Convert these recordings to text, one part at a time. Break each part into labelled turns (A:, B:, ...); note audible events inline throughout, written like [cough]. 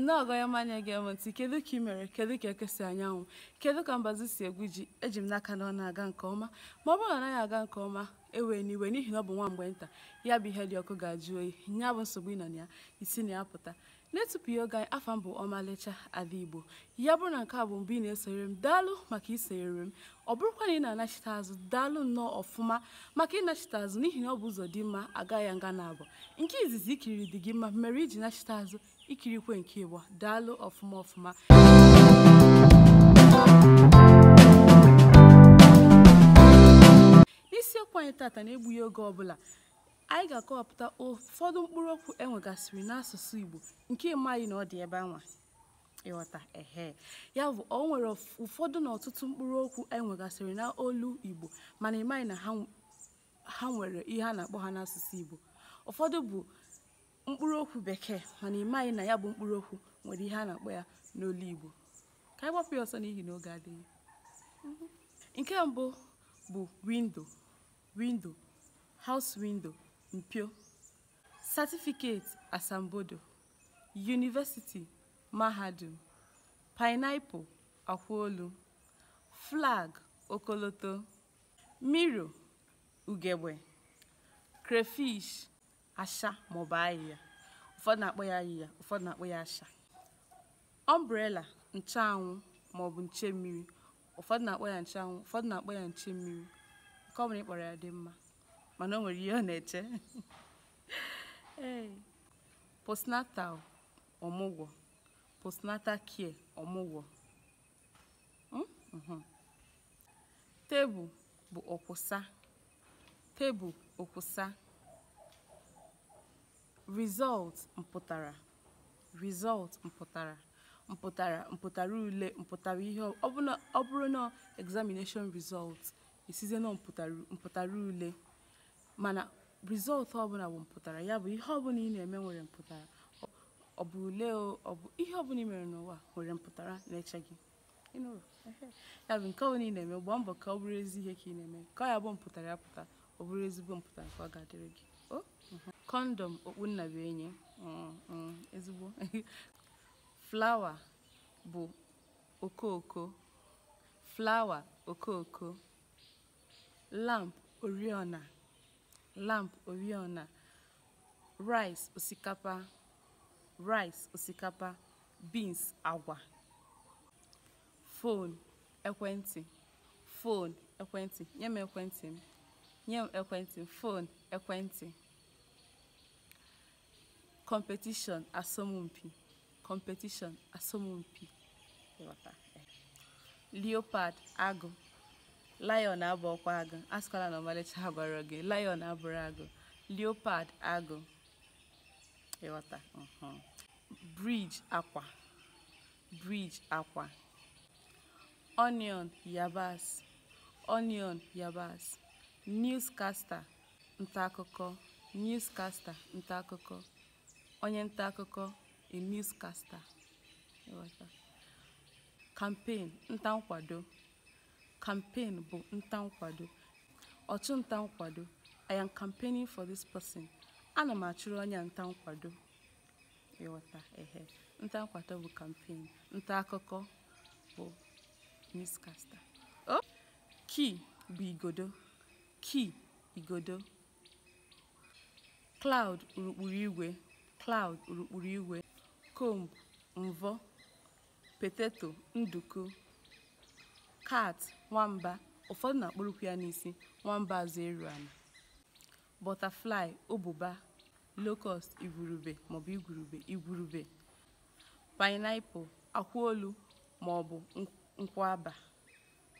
A: nne ọgọyọma anya gị eme ntị kedu ka ị mere kedu ka ekesi anyanwụ kedu ka mbazi si egwu ji eji m n'aka na ọ na-aga nke ọma ma ọ bụrụ na ọ aga nke ọma ewee n'iwe n'ihi na ọ bụ nwa mgbe nta ya bụ ihe dị ọkụ ga-ajụ oyi nya bụ nsogbu ịnọ na ya isi na ya pụta na-etupu ya oge anyị afọ m bụ ọmalịcha ala igbo ya bụrụ na nke a bụ mbụ ị na-esonyere m daalụ maka isonyere m ọ bụrụkwa na ị na-anachite azụ daalụ nnọọ ọfụma maka ịnachite azụ n'ihi na ọ bụ ụzọ dị mma ya nga na abụọ nke izizi ikiri dị gị mma mere iji nachite azụ ikirikwe nke ịbụọ daalụ ọfụma ọfụma isiokwu anyị tata na-egbughị oge ọbụla anyị ga-akọwapụta ụfọdụ mkpụrụ okwu enwegasịrị n'asụsụ Igbo nke ịmaghị na ọ dị ebe anwa ịghọta ehe ya bụ o nwere ụfọdụ na ọtụtụ mkpụrụ okwu enwegasịrị n'olu Igbo mana ịmaghị na ha nwere ihe a na-akpọ ha n'asụsụ Igbo ụfọdụ bụ mkpụrụ okwu bekee mana ịmaghị na ya bụ mkpụrụ okwu nwere ihe a na-akpọ ya n'olu Igbo ka anyị gbapụ ya ọsọ n'ihi na oge adịghị nke mbụ bụ windo windo house windo mpio certificate asambodo yunivesiti mahadum paịnaịpụl akwaolu flag okoloto miro ugegbe crayfish asha maọbụ ahịhịa ụfọdụ na-akpọ ya ahịhịa ụfọdụ na-akpọ ya asha ọmbrela maọbụ nche mmiri ụfọdụ na-akpọ ya ncheanwụ ụfọdụ na-akpọ ya nche mmiri ka ọ bụrụ ịkpọrọ ya dị mma mana o nwere ihe ọ na-eche postnatal ọmụgwọ postnatal care ọmụgwọ hmm? mm-hmm. tebụl bụ ọkwụsa tebụl ọkwụsa result mpụtara result mpụtara mpụtara mpụtara ule mpụtara ihe ọ bụrụ na examination result esize na mpụtara ule mana rizọltụ ọbụla bụ mpụtara ya bụ ihe ọbụla ị na-eme nwere mpụtara ọ bụ ule ọ bụ ihe ọbụla ị mere n'ụwa nwere mpụtara na-eche gị ya bụ nke ọbụla ị na-eme gbaa mbọ ka ọ bụrụ ezi ihe ka ị na-eme ka ọ ya bụ mpụtara ya pụta ọ bụrụ ezigbo mpụtara ka ọ ga-adịrị gị mhm. kọndọm okpunnabuenyi mm, mm, ezigbo [laughs] flawa bụ okooko flawa okooko lamp oriọna lamp oriọna rice osikapa rice osikapa beans agwa phone ekwentị phone ekwentị nye m ekwentị m nye m ekwentị phone ekwentị competition asọmpi competition asọmpi leopard agụ lion abụọkwa agụ asịkwala na ọmalịcha agwara gị lion abụrụ agụ leopard agụ ịghọta bridge akwa bridge akwa onion yabasị onion yabasị newscaster ntaakụkọ newscaster ntaakụkọ onye ntaakụkọ a newscaster campaign nta nkwado Campaign bụ nta nkwado, ọchụnta nkwado. I am campaigning for this person. Ana m achụrụ onye a nta nkwado. Ịghọta ehe. Nta nkwado bụ campaign. Nta akụkọ bụ newscaster. Oh! Kii bụ igodo. kii, igodo. Cloud urukpuru igwe. Cloud urukpuru igwe. Comb mvọ. Potato nduku. Kat- nwamba ụfọdụ na-akpọrọkwu ya n'isi nwamba azụ eru ala butterfly ụbụba locust igwurube maọbụ igwurube igwurube pineapple akwụolu maọbụ nkwaba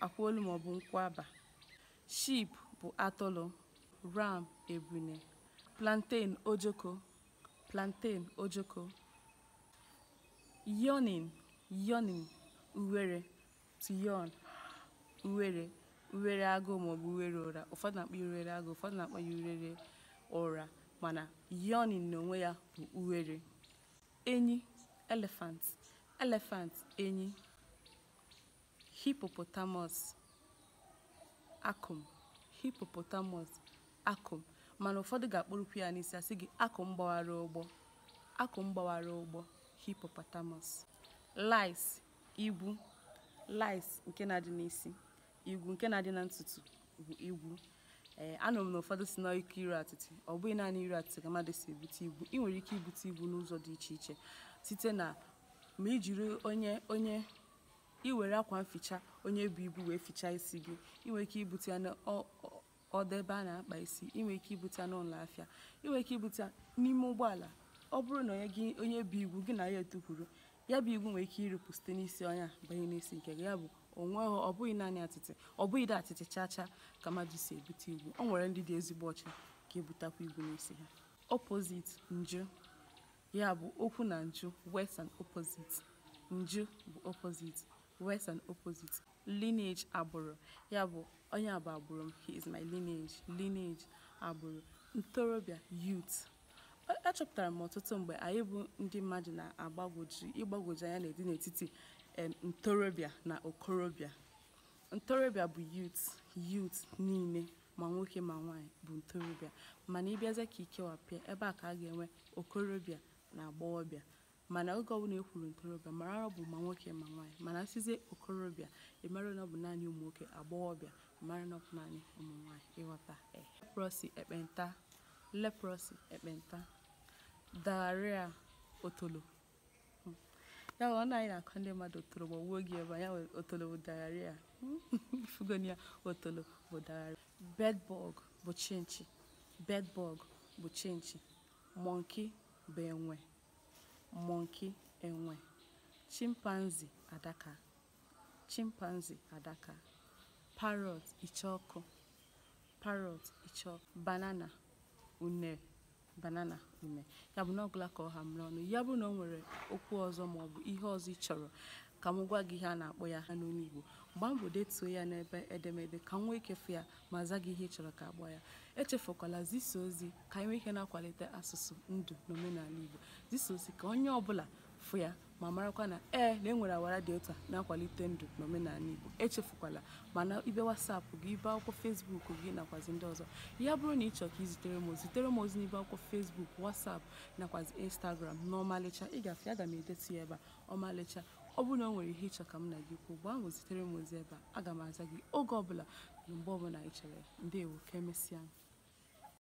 A: akwụolu maọbụ nkwaba sheep bụ atụrụ ram ebune plantain ojoko plantain ojoko yawning yawning uwere to uwere uwere agụụ maọbụ uwere ụra ụfọdụ na-akpọ uwere agụụ ụfọdụ na-akpọ ya urere ụra mana yoni onwe ya bụ uwere enyi elephant elephant enyi hippopotamus akụm hippopotamus akụm mana ụfọdụ ga akpụrụkwu ya n'isi asị gị akụm gbawara ụgbọ akụm gbawara ụgbọ hippopotamus lice igbu, lice nke na-adị n'isi igwu nke na-adị na ntutu bụ igwu ee eh, anụrụ m na ụfọdụ si na ike iru atịtị ọ bụghị naanị iru atịtị ka mmadụ si ebute igwu ị nwere ike ibute igwu n'ụzọ dị iche iche site na ma ijiri onye onye iwere akwa mficha onye bụ ibu wee fichaa isi gị nwere ike ibute ya n'ọdọ ebe a na-akpa isi nwere ike ibute ya n'ụlọ afịa nwere ike ibute ya n'ime ụgbọala ọ bụrụ na onye gị onye bụ igwu gị na ya etukwuru ya bụ igwu nwere ike iripụ site n'isi ọnya banye n'isi nke gị ya bụ onweghị ọ bụghị naanị atịtị ọ bụghị atịtị chaa chaa ka mmadụ si ebute igwu ọ nwere ndị dị ezigbo ọcha ka ebutakwa igwu n'isi ha opposite nju ya bụ okwu na nju west and opposite nju bụ opposite west and opposite lineage agbụrụ ya bụ onye bụ agbụrụ m he is my lineage lineage agbụrụ ntorobịa youth achọpụtara m ọtụtụ mgbe anyị bụ ndị mmadụ na-agbagwoju ịgbagwoju anya na-edi n'etiti ntorobịa na okorobịa ntorobịa bụ yut youth niile ma nwoke ma nwaanyị bụ ntorobịa mana ịbịazie ka ikewapịa ebe a ka a ga-enwe okorobịa na agbọghọbịa mana oge ọbụla ekwuru ntorobịa mara ọ bụ ma nwoke ma nwaanyị mana sizie okorobịa ịmara na ọ bụ naanị ụmụ nwoke agbọghọbịa mara na ọ bụ naanị ụmụ nwaanyị ịghọta eh, leprọsi ekpenta leprọsi ekpenta daria otolo ya ọ na anyị na-akọ ndị mmadụ otolo ma wuo gị ebe anya otolo bụ daria hmm. [laughs] fugonia otolo bụ daria bedbug bụ chinchi bedbug bụ chinchi mọnki bụ enwe mọnki enwe chimpanzi adaka chimpanzi adaka parrot iche ọkụ parrot iche banana unere banana ume ya bụ na ọgụla ka ọ ha ọnụ ya bụrụ na ọ nwere okwu ọzọ maọbụ ihe ọzọ ị chọrọ ka m gwa gị ihe a na-akpọ ya ha n'olu Igbo gbaa mbọ detuo ya n'ebe edemede ka m nwee ikefu ya ma zaa gị ihe ị chọrọ ka agbọ ya echefukwala zisa ozi ka anyị e nwee ike na-akwalite asụsụ ndụ na omenala Igbo zisa ozi ka onye ọ bụla. fụ ya ma marakwa na ee na enwere awara dị ụta na-akwalite ndụ n'omenala Igbo echefukwala mana ibe wasapụ gị ibe akwụkwọ fesbuk gị nakwazi ndị ọzọ ya bụrụ na ị chọọ ka izitere m ozitere zitere m ozi n'ibe akwụkwọ fesbuk wasap nakwazi instagram na ọmalịcha ị gafe aga m edetu ya ebe a ọmalịcha ọ bụrụ na ọ nwere ihe ịchọ ka m na gị kwuo gba ahụ zitere m ozi ebe a aga m aza gị oge ọbụla na mgbe ọbụla ị chere ndewo ka e